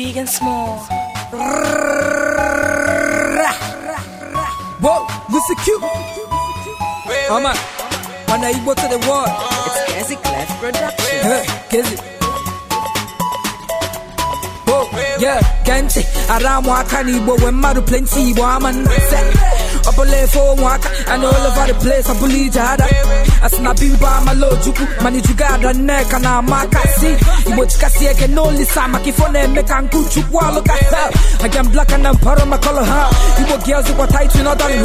big and small. Whoa, Lucy Q. I'm a Igbo to the world. It's Kezi Production. Kezi. Yeah, around when plenty, woman. I believe for Waka and all over the place. I believe Jada. As na biba malo juku mani jugada neka na makasi. Imochika sieke no lisa makifone meka nkuchu walo kasa. I am black and I'm part of my color ha. Ibo girls who are tight we not done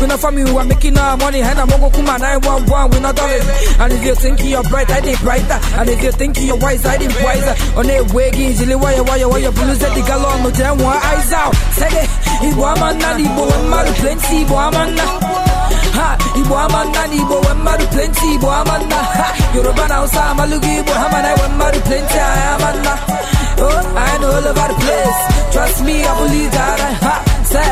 We not family we are making our money. Hena mongo kuma we not And if you think you're bright, I think Igbo amanna n'Igbo nwe mmadụ plenti. Igbo amanna ha Igbo amanna n'Igbo nwe mmadụ plenti. Igbo amanna ha Yoruba na Hausa amalụgo Igbo ha mana nwe mmadụ plenti anyị amanna oh I know all over the place trust me I believe that I ha say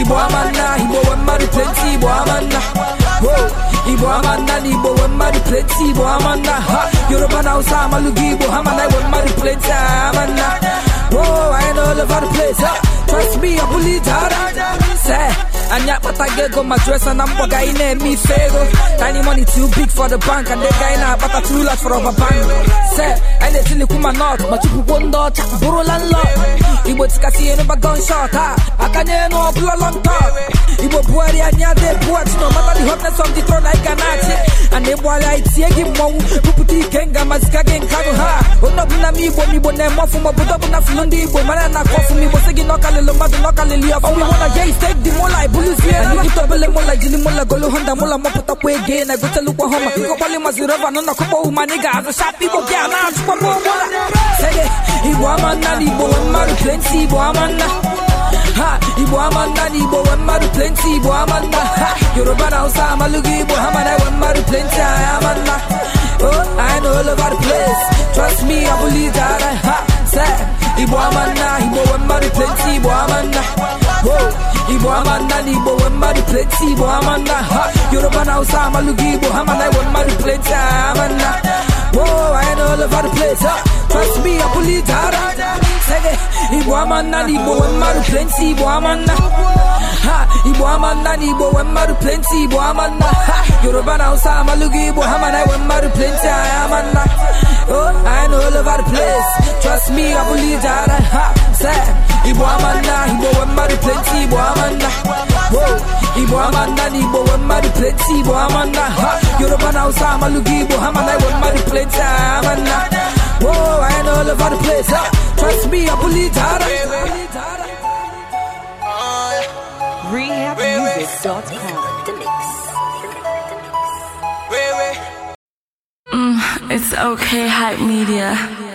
Igbo amanna Igbo nwe mmadụ plenti. Igbo amanna oh Igbo amanna na Igbo nwe mmadụ plenti. Igbo amanna ha Yoruba na Hausa amalụgo Igbo ha mana nwe mmadụ anyị. anyị akpatago ego ma jụọ na mkpọ ga anyị na-eme ife ego tiny money too big for the bank and ego anyị na-akpata too large for our bank se anyị na-etilikwu ma not ma chụpụkwo ndị ọcha bụrụla nlọ igbo tikasị ihe n'ụba gunshot ha aka nye enu ọbụla long talk igbo buhari anyị adị ebuhachi no matter the hotness of the throne anyị ga na-achị ịgbara itie gị mmọnwụ bupụta ike nga mazika gị nka rụ ha onye ọbụla m igbo na-eme ọfụma obodo ọbụla fụlụ ndị igbo mara na akọ ọfụma igbo sị gị na ọkalịlụ mmadụ na ọkalịlị ọfụma iwu na je istek dị mụla ibụlụzie nkịta obele mụla jiri mụla golu honda mụla mọpụtakwa ege na egotelukwa homa ịkọkpali mazi rọba na ga igbo na sege Igbo amanda na Igbo nwe mmadụ plenty Igbo amanda Yoruba na Hausa amalụghị Igbo ha mana enwe mmadụ plenty anyị Oh, I know all the place Trust me, I believe that I ha Say, Igbo amanda Igbo nwe plenty Igbo amanda Whoa, Igbo amanda na Igbo plenty Igbo ha Yoruba na Hausa amalụghị Igbo ha mana enwe I know all the place Trust me, I believe that sege Igbo amanna na Igbo nwe mmadụ plenti Igbo amanna ha Igbo amanna na Igbo nwe mmadụ plenty Igbo amanna ha Yoruba na Hausa amalụgo Igbo ha mana mmadụ plenty amanna oh I know all the place trust me I believe that ha say Igbo amanna, Igbo we mmadụ plenty, Igbo amanna Igbo amanna na Igbo we mmadụ plenti Igbo amanna Yoruba na Hausa amalụgo Igbo hamana mana we plenti plenty amanna Whoa, I ain't all over the place, ha. Trust me, I believe that. Rehabmusic.com. Mm, it's okay, hype media.